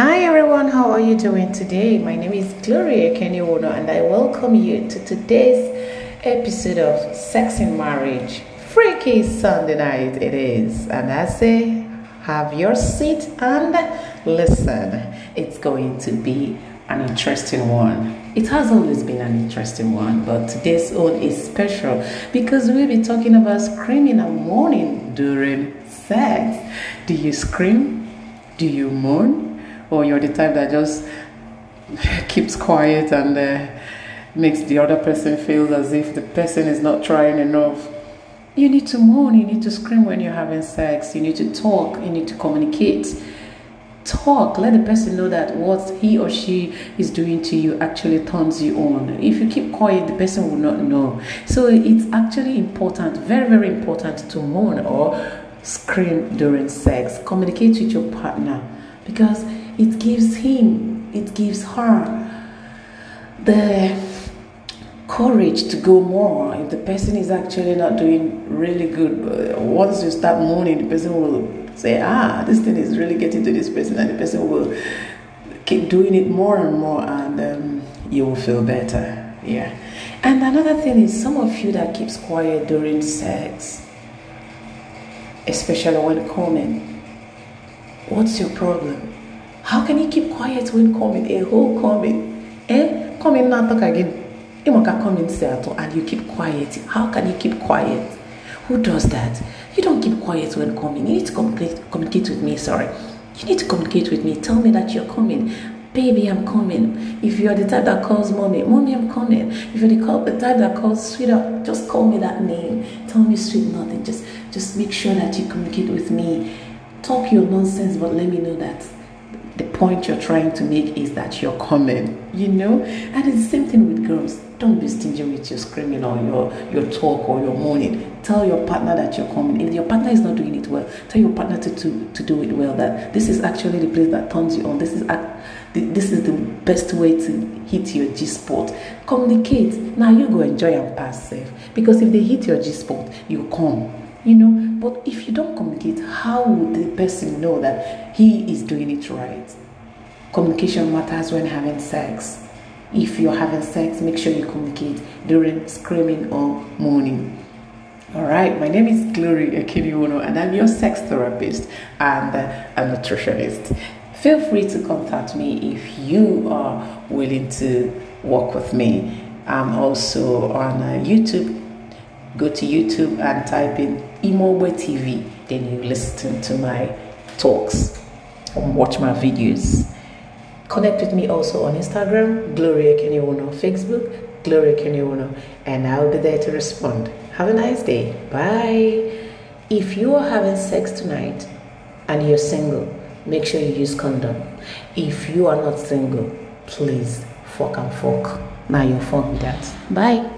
Hi everyone, how are you doing today? My name is Gloria Kenyono and I welcome you to today's episode of Sex in Marriage. Freaky Sunday night it is, and I say have your seat and listen. It's going to be an interesting one. It has always been an interesting one, but today's one is special because we'll be talking about screaming and moaning during sex. Do you scream? Do you moan? or you're the type that just keeps quiet and uh, makes the other person feel as if the person is not trying enough. You need to moan, you need to scream when you're having sex, you need to talk, you need to communicate. Talk, let the person know that what he or she is doing to you actually turns you on. If you keep quiet, the person will not know. So it's actually important, very, very important to moan or scream during sex. Communicate with your partner because it gives him, it gives her the courage to go more. If the person is actually not doing really good, once you start mooning, the person will say, Ah, this thing is really getting to this person, and the person will keep doing it more and more, and um, you will feel better. Yeah. And another thing is, some of you that keeps quiet during sex, especially when coming, what's your problem? how can you keep quiet when coming a whole coming eh coming na talk again! imoka! coming si atọ and you keep quiet how can you keep quiet who does that you don't keep quiet when coming you need to communicate, communicate with me sorry you need to communicate with me tell me that you're coming baby, I'm coming. If you're the type that calls mommy, mommy, I'm coming. If you're are the type that calls sweetheart, just call me that name. Tell me sweet nothing. Just, just make sure that you communicate with me. Talk your nonsense, but let me know that the point you're trying to make is that you're common, you know? And it's the same thing with girls. Don't be stingy with your screaming or your, your talk or your moaning. Tell your partner that you're coming. If your partner is not doing it well, tell your partner to, to, to do it well. That this is actually the place that turns you on. This is act, this is the best way to hit your G spot. Communicate. Now you go enjoy and pass safe. Because if they hit your G spot, you come you know but if you don't communicate how would the person know that he is doing it right communication matters when having sex if you're having sex make sure you communicate during screaming or moaning all right, my name is Glory Akiniwono, and I'm your sex therapist and a nutritionist. Feel free to contact me if you are willing to work with me. I'm also on uh, YouTube go to YouTube and type in Imogbe TV. Then you listen to my talks and watch my videos. Connect with me also on Instagram, Gloria Kenyono, Facebook, Gloria Kenyono, and I'll be there to respond. Have a nice day. Bye. If you are having sex tonight and you're single, make sure you use condom. If you are not single, please fuck and fuck. Now your fuck be that. Bye.